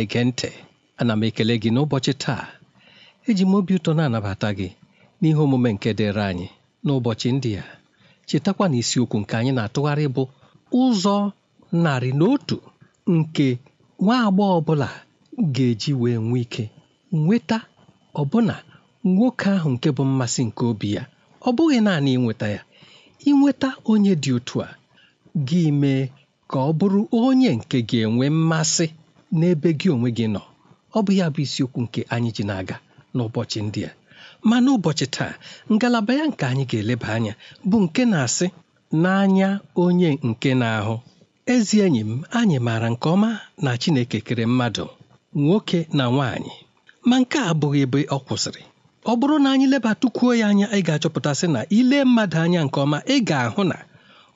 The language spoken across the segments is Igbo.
na-ege ntị ana m ekele gị n'ụbọchị taa eji m obi ụtọ na-anabata gị n'ihe omume nke dịrị anyị n'ụbọchị ndị a chetakwa na isiokwu nke anyị na-atụgharị bụ ụzọ narị na otu nke nwa agbọghọ ọbụla ga-eji wee nwee ike nweta ọbụna nwoke ahụ nke bụ mmasị nke obi ya ọ bụghị naanị ịnweta ya ịnweta onye dị otu a gị mee ka ọ bụrụ onye nke ga-enwe mmasị n'ebe gị onwe gị nọ ọ bụ ya bụ isiokwu nke anyị ji na-aga n'ụbọchị ndị a ma n'ụbọchị taa ngalaba ya nke anyị ga-eleba anya bụ nke na-asị n'anya onye nke na-ahụ ezi enyi m anyị maara nke ọma na Chineke kere mmadụ nwoke na nwaanyị ma nke a abụghị ebe ọ kwụsịrị ọ bụrụ na anyị lebatụkwuo ya anya ị ga-achọpụtasị na ile mmadụ anya nke ọma ị ga-ahụ na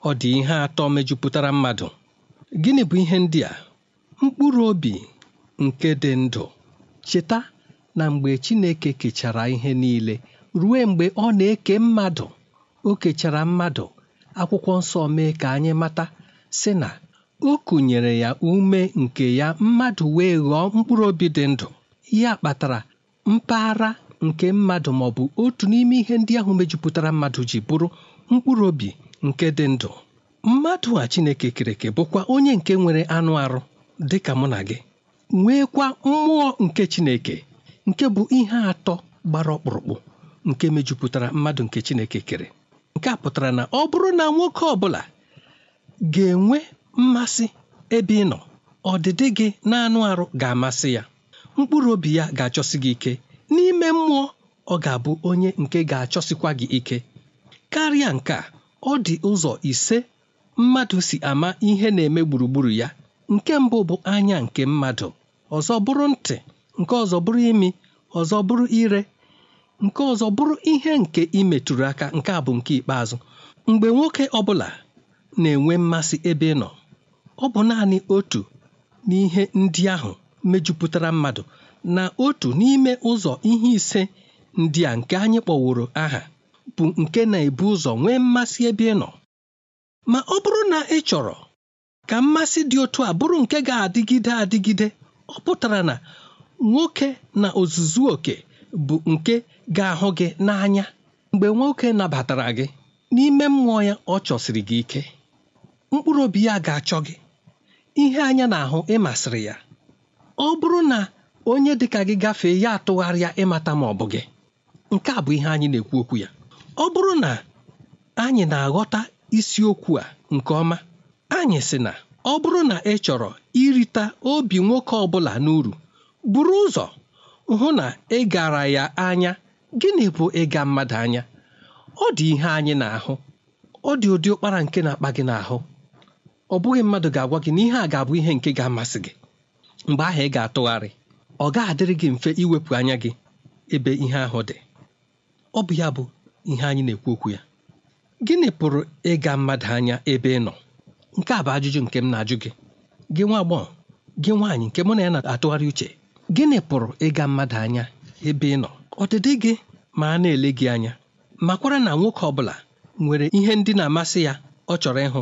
ọ dị ihe atọ mejupụtara mmadụ gịnị bụ ihe ndị a mkpụrụ obi nke dị ndụ cheta na mgbe Chineke kechara ihe niile ruo mgbe ọ na-eke mmadụ o kechara mmadụ akwụkwọ nsọ mee ka anyị mata si na o kụnyere ya ume nke ya mmadụ wee ghọọ mkpụrụ obi dị ndụ ya kpatara mpaghara nke mmadụ ma ọ bụ otu n'ime ihe ndị ahụ mejupụtara mmadụ ji bụrụ mkpụrụ obi nke dị ndụ mmadụ a Chineke kereke bụkwa onye nke nwere anụ arụ dị ka mụ na gị nweekwa mmụọ nke Chineke nke bụ ihe atọ gbara ọkpụrụkpụ nke mejupụtara mmadụ nke Chineke kere nke a pụtara na ọ bụrụ na nwoke ọ bụla ga-enwe mmasị ebe ị nọ ọdịdị gị na-anụ arụ ga-amasị ya mkpụrụ obi ya ga-achọsi gị ike n'ime mmụọ ọ ga-abụ onye nke ga-achọsikwa gị ike karịa nke a ọ dị ụzọ ise mmadụ si ama ihe na-eme gburugburu ya nke mbụ bụ anya nke mmadụ ọzọ bụrụ ntị nke ọzọ bụrụ imi ọzọ bụrụ ire nke ọzọ bụrụ ihe nke imetụrụ aka nke a bụ nke ikpeazụ mgbe nwoke ọbụla na-enwe mmasị ebe ị nọ ọ bụ naanị otu n'ihe ndị ahụ mejupụtara mmadụ na otu n'ime ụzọ ihe ise ndị a nke anyị kpọworo aha bụ nke na-ebu ụzọ nwee mmasị ebe ị nọ ma ọ bụrụ na ị chọrọ ka mmasị dị otu a bụrụ nke ga-adịgide adịgide ọ pụtara na nwoke na ozuzu oke bụ nke ga-ahụ gị n'anya mgbe nwoke nabatara gị n'ime mmụọ ya ọ chọsiri gị ike mkpụrụ obi ya ga-achọ gị ihe anya na-ahụ ịmasịrị ya ọ bụrụ na onye dịka gị gafee ya atụgharịa ịmata ma ọ bụ gị nke a bụ ihe anyị na-ekwu okwu ya ọ bụrụ na anyị na-aghọta isiokwu a nke ọma anyị sị na ọ bụrụ na ị chọrọ irita obi nwoke ọbụla n'uru buru ụzọ hụ na ị gara ya anya gịnị bụ ịga mmadụ anya ọ dị ihe anyị na-ahụ ọ dị ụdị ụkpara nke na-akpa gị n'ahụ ọ bụghị mmadụ ga-agwa gị na ihe a ga-abụ ihe nke ga-amasị gị mgbe ahụ ị ga-atụgharị ọ ga-adịrị gị mfe iwepụ anya gị ebe ihe ahụ dị ọ bụ ya bụ ihe anyị na-ekwu okwu ya gịnị pụrụ ịga mmadụ anya ebe ị nọ nke a bụ ajụjụ nke m na-ajụ gị gị nwa agbọghọ gị nwaanyị nke mụ na ya na-atụgharị uche gịnị pụrụ ịga mmadụ anya ebe ị nọ ọdịdị gị ma a na-ele gị anya makwara na nwoke ọ bụla nwere ihe ndị na-amasị ya ọ chọrọ ịhụ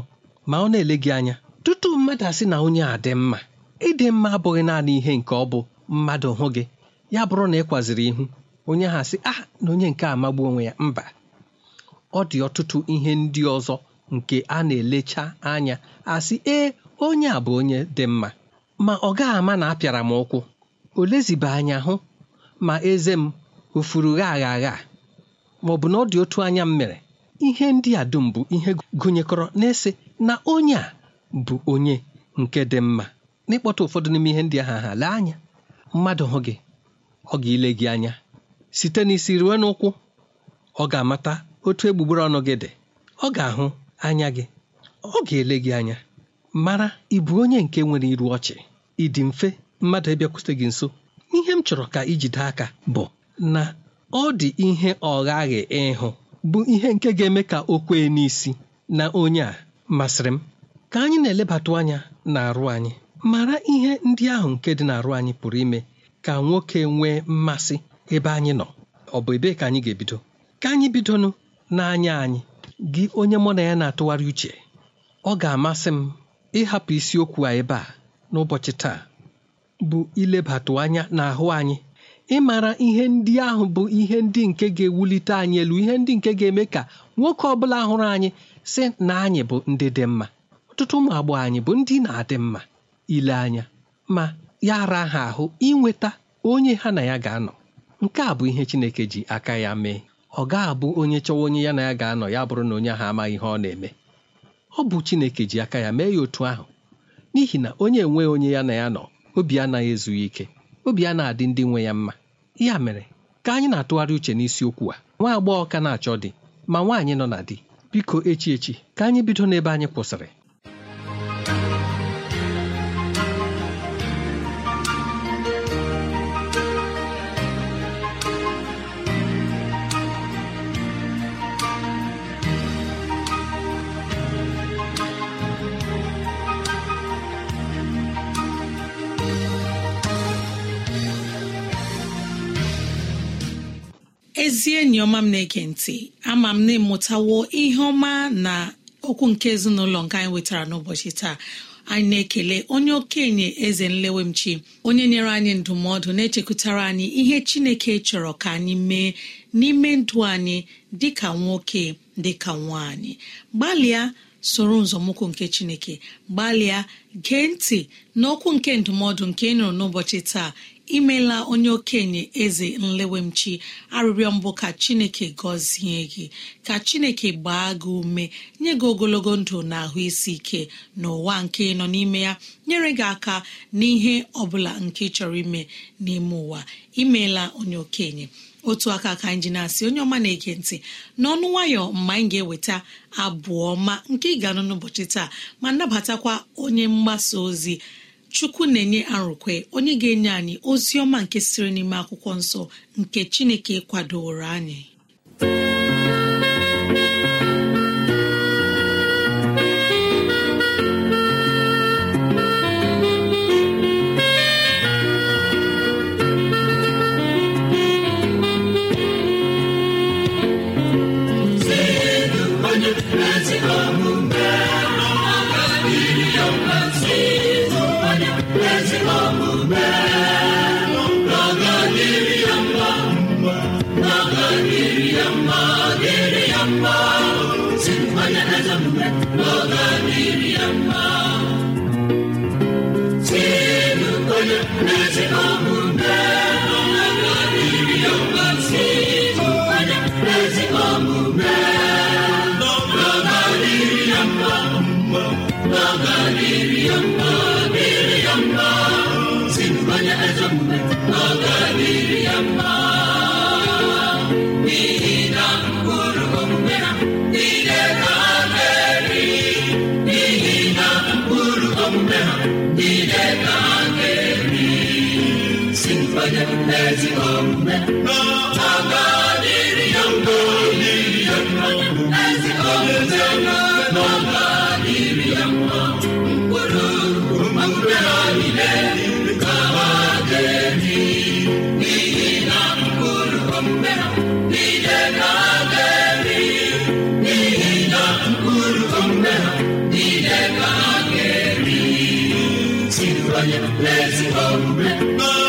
ma ọ na-ele gị anya tutu mmadụ asị na onye a dị mma ịdị mma abụghị naanị ihe nke ọ bụ mmadụ hụ gị ya bụrụ na ị kwaziri ihu onye ha asị ah na onye nke amagbu onwe ya mba ọ dị ọtụtụ ihe ndị ọzọ nke a na-elecha anya asị ee onye a bụ onye dị mma ma ọ gaghị ama na apịara m ụkwụ o lezibe anya hụ ma eze m o gha agha agha ma ọ bụ na ọ dị otu anya m mere ihe ndị a dum bụ ihe gụnyekọrọ na-ese na onye a bụ onye nke dị mma n'ịkpọta ụfọdụ n'ime ihe ndị ahụ aha lee anya mmadụ hụ gị ọ ga-ile gị anya site n'isi ruo n'ụkwụ ọ ga-amata otu egbugbere ọnụ gị dị ọ ga-ahụ anya gị ọ ga-ele gị anya mara ịbụ bụ onye nke nwere iru ọchị ịdị mfe mmadụ ịbịakwute gị nso ihe m chọrọ ka ijide aka bụ na ọ dị ihe ọghaghị ịhụ bụ ihe nke ga-eme ka o kwee n'isi na onye a masịrị m ka anyị na-elebatụ anya na-arụ anyị mara ihe ndị ahụ nke dị n'arụ anyị pụrụ ime ka nwoke nwee mmasị ebe anyị nọ ọ bụ ebee ka anyị ga-ebido ka anyị bidonụ n'anya anyị gị onye mụ na ya na-atụgharị uche ọ ga-amasị m ịhapụ isiokwu a ebe a n'ụbọchị taa bụ ilebatụ anya n'ahụ anyị ịmara ihe ndị ahụ bụ ihe ndị nke ga-ewulite anyị elu ihe ndị nke ga-eme ka nwoke ọ bụla hụrụ anyị sị na anyị bụ ndị dị mma ọtụtụ ụmụ agbọghọ anyị bụ ndị na-adị mma ile anya ma ya ara ha ahụ inweta onye ha na ya ga-anọ nke a bụ ihe Chineke ji aka ya mee ọ ga-abụ onye chọwa onye ya na ya ga-anọ ya bụrụ na onye ahụ amaghị ihe ọ na-eme ọ bụ Chineke ji aka ya mee ya otu ahụ n'ihi na onye enweghị onye ya na ya nọ obi anaghị ezughị ike obi a na-adị ndị nwe ya mma ya mere ka anyị na-atụgharị uche n'isiokwu a nwa agbọghọ ka na-achọ di ma nwaanyị nọ na di biko echi echi ka anyị bido n'ebe anyị kwụsịrị ezi enyi ọma m na-ege ntị ama m na ịmụtawo ihe ọma na okwu nke ezinụlọ nke anyị wetara n'ụbọchị taa anyị na-ekele onye okenye eze nlewemchi onye nyere anyị ndụmọdụ na-echekwutara anyị ihe chineke chọrọ ka anyị mee n'ime ndụ anyị dịka nwoke dịka nwaanyị gbalịa soro nzọmụkwụ nke chineke gbalịa gee ntị n'okwu nke ndụmọdụ nke ị nụrụ n'ụbọchị taa imela onye okenye eze nlewemchi arịrịọ mbụ ka chineke gọzie gị ka chineke gbaa gị ume nye gị ogologo ndụ na ahụ isi ike n'ụwa nke nọ n'ime ya nyere gị aka n'ihe ọ bụla nke chọrọ ime n'ime ụwa imeela onye okenye otu aka ka anyị ji na-asị onye ọma na-ege ntị n'ọnụ nwayọ mgbe anyị ga-eweta abụọ ma nke ị ga-anụ n'ụbọchị taa ma nabatakwa onye mgbasa ozi chukwu na-enye arụkwe onye ga-enye anyị ozi ọma nke siri n'ime akwụkwọ nsọ nke chineke kwadoro anyị Panie Prezydencie!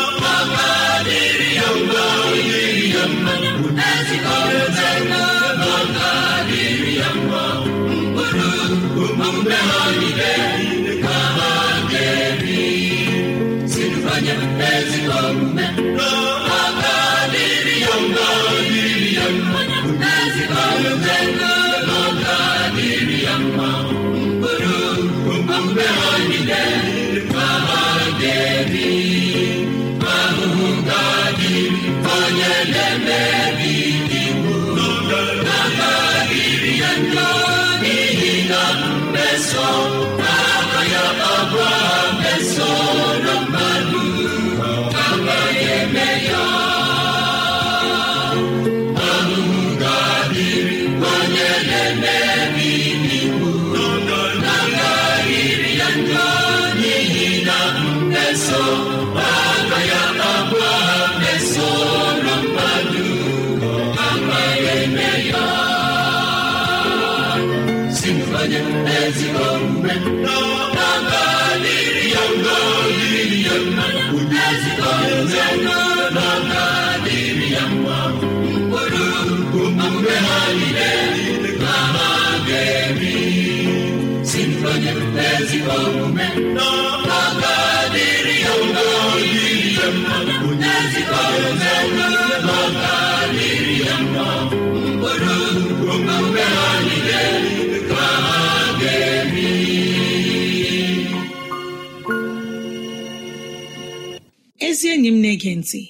ezi enyi m na-ege ntị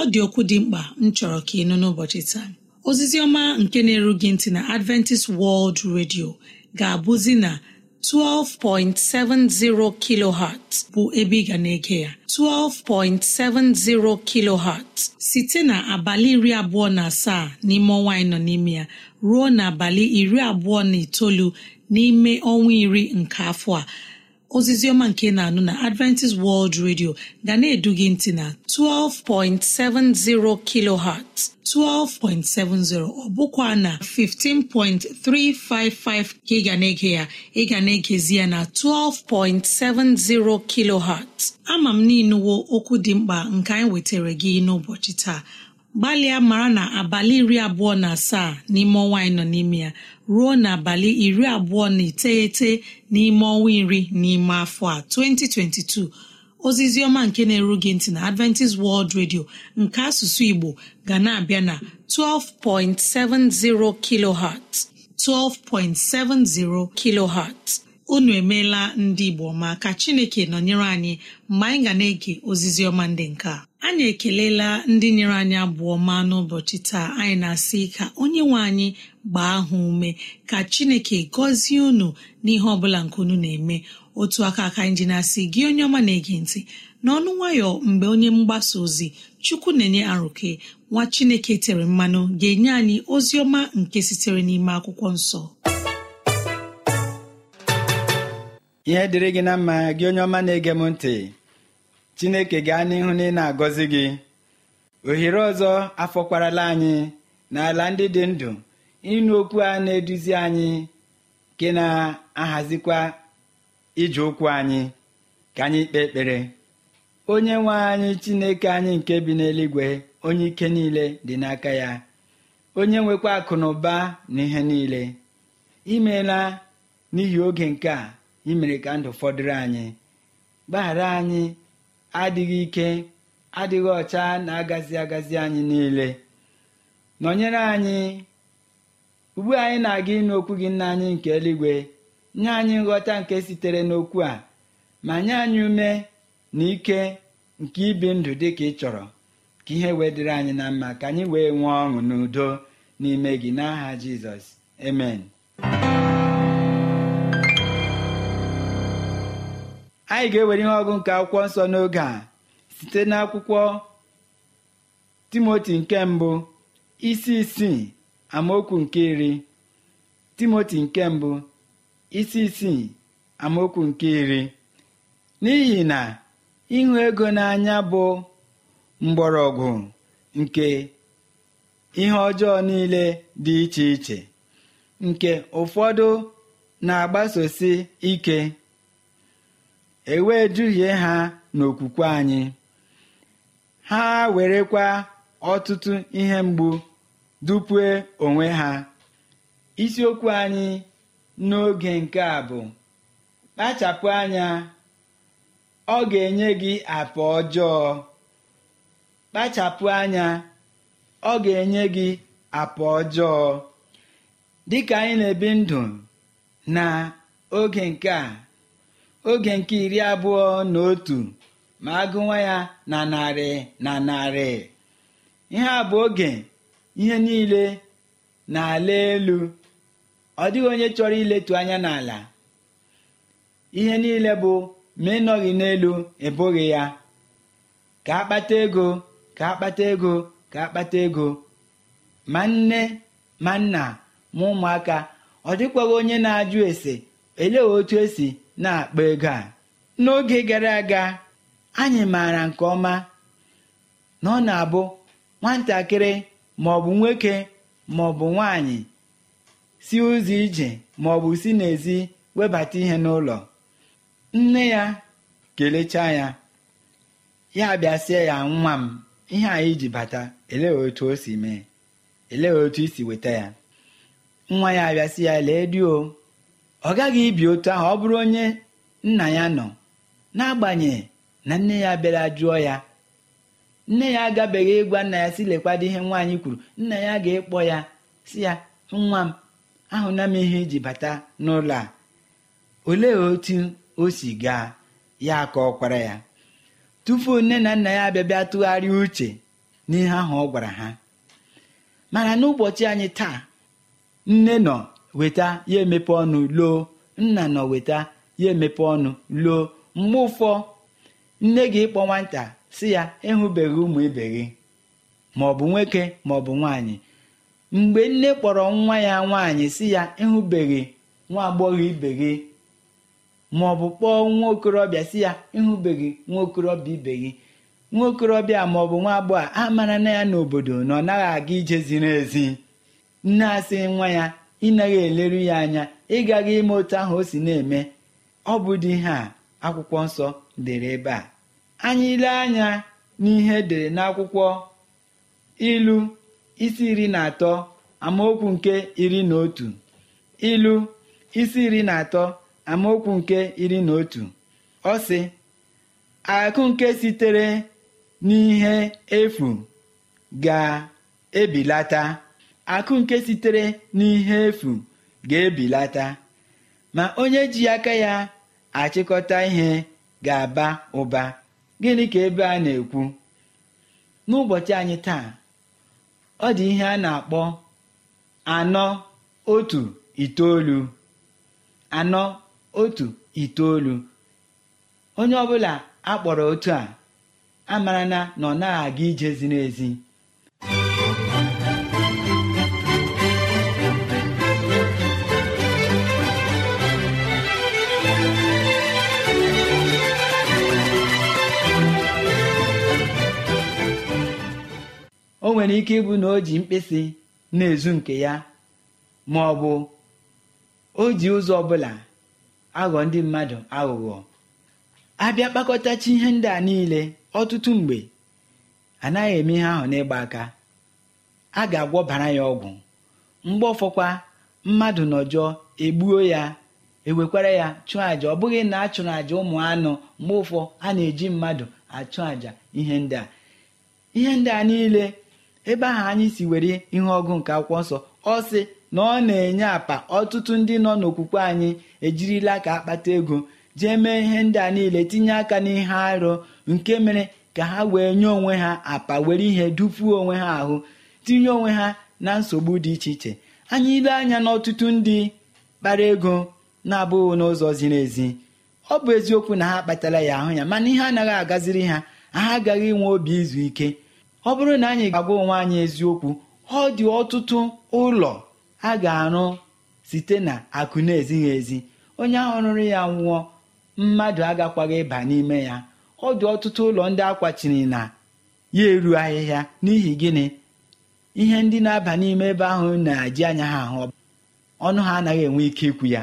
ọ dị okwu dị mkpa m chọrọ ka ị nụ n'ụbọchị taa ozizi ọma nke na-eru gị ntị na adventist world radio ga-abụzi na 12.70 kilohertz bụ ebe ị ga na-ege ya 12.70 kilohertz site na abalị iri abụọ na asaa n'ime ọnwa anyị nọ n'ime ya ruo n'abalị iri abụọ na itoolu n'ime ọnwa iri nke afọ a ozizioma nke na-anụ na adventist world radio ga na-edu gị ntị na 12.70 kilohertz 12.70 ọ bụkwa na 15.355 ka ị ga na-ege ya ị ga na-egezi ya na 12.70 kilohertz ama m n'inuwo okwu dị mkpa nke anyị wetara gị n'ụbọchị taa gbalịa mara na abalị iri abụọ na asaa n'ime ọnwa anyị nọ n'ime ya ruo n'abalị iri abụọ na iteghete n'ime ọnwa iri n'ime afọ a 2022 ozizi ọma nke na-eru ntị na Adventist World Radio nke asụsụ Igbo ga na-abịa na 12.70 kilohertz 12.70 kilohertz unu emeela ndị Igbo ma ka Chineke nọnyere anyị mgbe anyị ga na-ege ozizi ndị nke a anyị ekelela ndị nyere anyị abụọ ma n'ụbọchị taa anyị na-asị ka onye nwe anyị gbaa ha ume ka chineke gọzie unu n'ihe ọ bụla nke unu na-eme otu aka aka anyị ji na-asị gị onye ọma na-ege ntị n'ọnụ nwayọ mgbe onye mgbasa ozi chukwu na-enye arụke nwa chineke tere mmanụ ga-enye anyị ozi ọma nke sitere n'ime akwụkwọ nsọ ihe dịrị gị na mma gị onye ọma na-ege m ntị chineke gaa n'ihu na ị na-agọzi gị ohere ọzọ afọkwarala anyị n'ala ndị dị ndụ ịnụ okwu a na-eduzi anyị nke na-ahazikwa ije ụkwụ anyị ka anyị kpee ekpere onye nwe anyị chineke anyị nke bi n'eluigwe onye ike niile dị n'aka ya onye nwekwa akụ na ụba na ihe niile imeela n'ihi oge nke a imere ka ndụ fọdụrụ anyị gbaghara anyị adịghị ike adịghị ọcha na-agazi agazi anyị niile nọnyere anyị ugbu anyị na-aga ịnụ okwu gị nna anyị nke eluigwe nye anyị nghọta nke sitere n'okwu a ma nye anyị ume na ike nke ibi ndụ dị ka ị chọrọ ka ihe wee dịrị anyị na mma ka anyị wee nwee ọṅụ n'udo n'ime gị n'aha Jizọs emen anyị ga-ewere ihe ọgụ nke akwụkwọ nsọ n'oge a site n'akwụkwọ timoti nke mbụ isi isii amaokwu nke iri timoti nke mbụ isi isii amaokwu nke iri n'ihi na ịhụ ego n'anya bụ mgbọrọgwụ nke ihe ọjọọ niile dị iche iche nke ụfọdụ na-agbasosi ike E wee duhie ha n'okwukwe anyị ha werekwa ọtụtụ ihe mgbu dupue onwe ha isiokwu anyị n'oge nke a bụ kpachapụ anya ọ ga-enye gị apa ọjọọ kpachapụ anya ọ ga-enye gị apa ọjọọ dịka anyị na-ebi ndụ na oge nke a oge nke iri abụọ na otu ma agụwa ya na narị na narị ihe a bụ oge ihe niile na-ala elu ọ dịghị onye chọrọ iletu anya n'ala ihe niile bụ ma ịnọghị n'elu ebughị ya ka akpata ego ka akpata ego ka akpata ego ma nne ma nna ma ụmụaka ọ dịkwaghị onye na-ajụ ese elee otu esi na-akpa ego a n'oge gara aga anyị maara nke ọma na ọ na-abụ nwatakịrị maọbụ nwoke maọbụ nwaanyị si ụzọ ije maọbụ si n'ezi webata ihe n'ụlọ nne ya kelechaa ya ya bịasịa ya nwa m ihe anyị iji bata elee otu o si mee elee otu i weta ya nwa ya abịasị ya lee ọ gaghị ibi otu ahụ ọ bụrụ onye nna ya nọ n'agbanyeghị na nne ya bịara jụọ ya nne ya agabeghị ịgwa nna ya si lekwado ihe nwaanyị kwuru nna ya ga ekpo ya si ya nwa m ahụna m ihe iji bata n'ụlọ a olee otu o si gaa ya ka ọ ya tupu nne na nna ya abịabịa tụgharịa uche n'ihe ahụ ọ gwara ha mana n'ụbọchị anyị taa nne nọ weta ya emepe ọnụ loo nna nọ weta ya emepe ọnụ loo mgbe ụfọ nne gị ịkpọ nwata si ya ịhụbeghị ụmụ ibe gị maọbụ nwoke maọbụ nwaanyị mgbe nne kpọrọ nwa ya nwaanyị si ya ịhụbeghị nwa agbọghọ ibe gị maọbụ kpọọ nwa okorobịa si ya ịhụbeghị nwa okorobịa ibe gị nwa okorobịa maọbụ nwa agbọghọ amara na ya n'obodo na ọ naghị aga ije ziri ezi nne asị nwa ya ịnaghị eleru ya anya ịgaghị ime otu ahụ o si na-eme ọ bụ dị ihe a akwụkwọ nsọ dere ebe a anyị ile anya n'ihe dere n'akwụkwọ ilu isi iri na atọ amaokwu nke iri na otu ilu isi iri na atọ amaokwu nke iri na otu ọ sị akụ nke sitere n'ihe efu ga-ebilata akụ nke sitere n'ihe efu ga-ebilata ma onye ji aka ya achịkọta ihe ga-aba ụba gịnị ka ebe a na-ekwu n'ụbọchị anyị taa ọ dị ihe a na-akpọ anọ otu itoolu anọ otu itoolu onye ọbụla akpọrọ otu a amarana na na ọ naghị aga ije ziri ezi o nwere ike ịbụ na o ji mkpịsị na-ezu nke ya ma ọ bụ o ji ụzọ ọbụla aghọ ndị mmadụ aghụghọ abịa kpakọtachi ihe ndị a niile ọtụtụ mgbe anaghị eme ihe ahụ n'ịgba aka a ga-agwọbara ya ọgwụ mgbe ọfọkwa mmadụ nọjọọ egbuo ya ewekwara ya chụọ àjà ọ bụghị na a chụrụ àjà ụmụ anụ mgbe ụfọ a na-eji mmadụ achụ àjà ihe ndị a ihe ndị a niile ebe ahụ anyị si were ihe ọgụ nke akwụkwọ nsọ ọ sị na ọ na-enye apa ọtụtụ ndị nọ n'okwukwe anyị ejirila ka akpata ego jee mee ihe ndị a niile tinye aka n'ihe arụ nke mere ka ha wee nye onwe ha apa were ihe dupuo onwe ha ahụ tinye onwe ha na nsogbu dị iche iche anyị ile anya n'ọtụtụ ndị kpara ego na-abụghị n'ụzọ ziri ezi ọ bụ eziokwu na ha kpatara ya ahụ ya mana ihe anaghị agaziri ha ha agaghị inwe obi izu ike ọ bụrụ na anyị ga-agwa onwe anyị eziokwu ọ dị ọtụtụ ụlọ a ga-arụ site na akụ na-ezighị ezi onye ahụ rụrụ ya nwụọ mmadụ agakwaghị ịba n'ime ya ọ dị ọtụtụ ụlọ ndị akwachiri na ya eru ahịhịa n'ihi gịnị ihe ndị na-aba n'ime ebe ahụ na-eji anya ha ahụ ọnụ ha anaghị enwe ike ikwu ya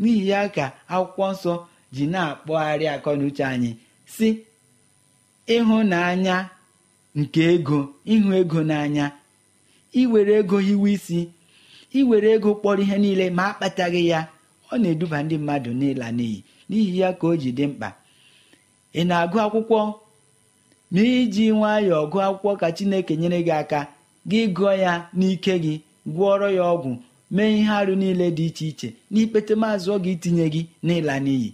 n'ihi ya ka akwụkwọ nsọ ji na-akpọgharị akọ na uche anyị si ịhụnanya nke ego ịhụ ego n'anya iwere ego hiwe isi iwere ego kpọrọ ihe niile ma akpataghị ya ọ na-eduba ndị mmadụ n'ịla n'iyi n'ihi ya ka o ji dị mkpa ị na-agụ akwụkwọ ma iji nwayọọ gụọ akwụkwọ ka Chineke nyere gị aka gị gụọ ya n'ike gị gwọọrọ ya ọgwụ mee ihe arụ niile dị iche iche n'ikpete maazụ ọ ga itinye gị n'ịla n'iyi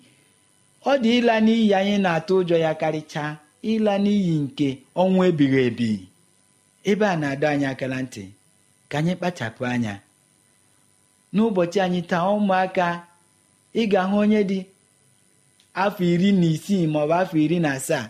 ọ dị ịla n'iyi anyị na-atụ ụjọ ya karịchaa ịla n'iyi nke ọnwụ ebighị ebi ebe a na-adọ anyị aka na ntị ka anyị kpachapụ anya n'ụbọchị anyị taa ụmụaka ị ga-ahụ onye dị afọ iri na isii maọbụ afọ iri na asaa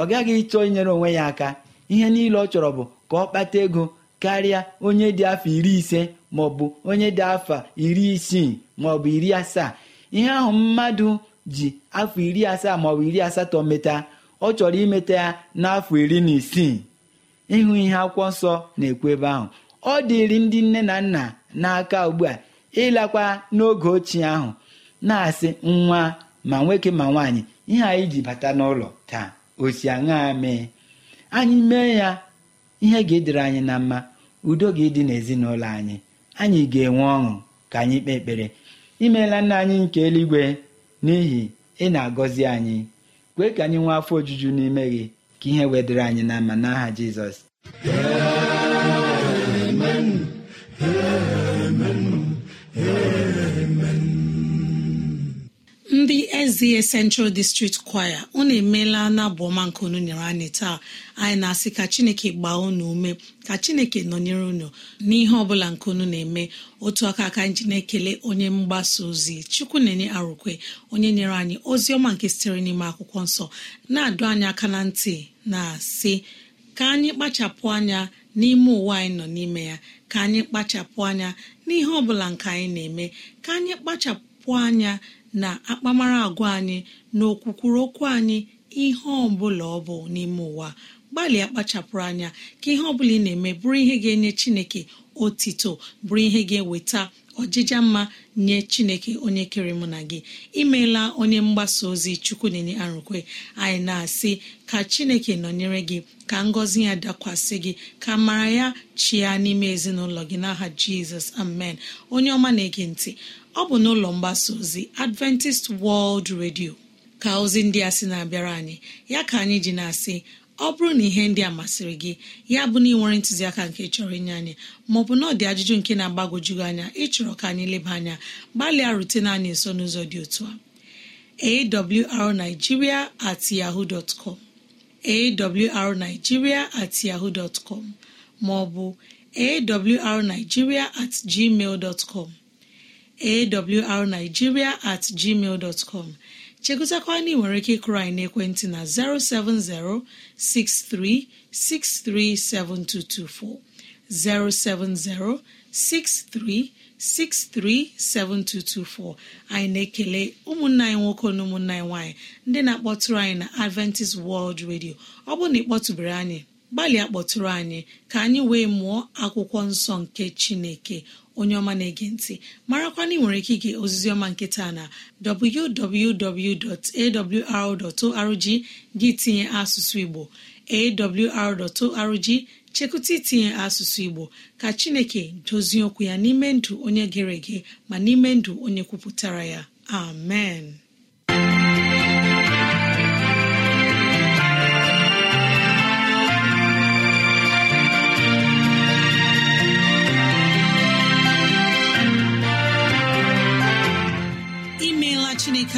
ọ gaghị ịchọ inyere onwe ya aka ihe niile ọ chọrọ bụ ka ọ kpata ego karịa onye dị afọ iri ise maọbụ onye dị afọ iri isii maọbụ iri asaa ihe ahụ mmadụ ji afọ iri asaa maọbụ iri asatọ meta ọ chọrọ imeta ya n'afọ iri na isii ịhụ ihe akwụkwọ nsọ na-ekwu ebe ahụ ọ dịrị ndị nne na nna n'aka ugbu a ịlakwa n'oge ochie ahụ na-asị nwa ma nwoke ma nwaanyị ihe anyị ji bata n'ụlọ taa osi aṅaa mee anyị mee ya ihe ga-edere anyị na mma udo ga-edị n'ezinụlọ anyị anyị ga-enwe ọṅụ ka anyị kpee ekpere imeela nna anyị nke eluigwe n'ihi ị na-agọzi anyị kwee ka anyị nwee afọ ojuju n'ime gị ka ihe wedere anyị n'ama n'aha Jizọs ndị eze central district choir unu emeela n'abụọma nke unu nyere anyị taa anyị na-asị ka chineke gbaa unu ume ka chineke nọnyere unu n'ihe ọbụla nke unu na-eme otu aka aka ji na-ekele onye mgbasa ozi chukwu na-enye arụkwe onye nyere anyị ozi ọma nke sitere n'ime akwụkwọ nsọ na-adụ anyị aka na ntị na-asị ka anyị kpachapụ anya n'ime ụwa anyị nọ n'ime ya ka anyị kpachapụ anya n'ihe ọbụla nke anyị na-eme ka anyị kpachapụ anya na akpamara agwa anyị na okwukwuru okwu anyị ihe bụla ọ bụ n'ime ụwa gbalịa kpachapụrụ anya ka ihe ọbụla ị na-eme bụrụ ihe ga-enye Chineke otito bụrụ ihe ga-eweta ọjịja mma nye chineke onye kere mụ na gị imeela onye mgbasa ozi chukwu na-enye arụkwe anyị na-asị ka chineke nọnyere gị ka ngọzi ya dakwasị gị ka mara ya chịa n'ime ezinụlọ gị n'aha jizọs amen onye ọma na-ege ntị ọ bụ n'ụlọ mgbasa ozi adventist world redio, ka ozi ndị a sị na-abịara anyị ya ka anyị ji na-asị ọ bụrụ na ihe ndị a masịrị gị ya bụ na ị nwere ntụziaka nke chọrọ inye anyị maọbụ na ọ dị ajụjụ nke na-agbagwoju anya ịchọrọ ka anyị leba anya gbalịa rutena anyị nso n'ụzọ dị otu a awrnigeria at yahoo dot com awrnigeria at yahoo com maọbụ awrnigeria at gmail dot com awrnigeria at gmail dot com chegụtakwa na nwere ike ịkụrụ anyị ekwentị na 07063637224 07063637224 anyị na-ekele ụmụnna anyị nwoke na ụmụnna anyị nwaanyị ndị na-akpọtụrụ anyị na Adventist World Radio ọ bụrụ na ị anyị gbalịa kpọtụrụ anyị ka anyị wee mụọ akwụkwọ nsọ nke Chineke onye ọma na-ege ntị na ị nwere ike ige oziziọma nketa na www.awr.org gị tinye asụsụ Igbo awr.org chekụta itinye asụsụ Igbo ka Chineke dozie okwu ya n'ime ndụ onye gere ege ma n'ime ndụ onye kwupụtara ya amen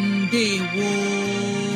ndewo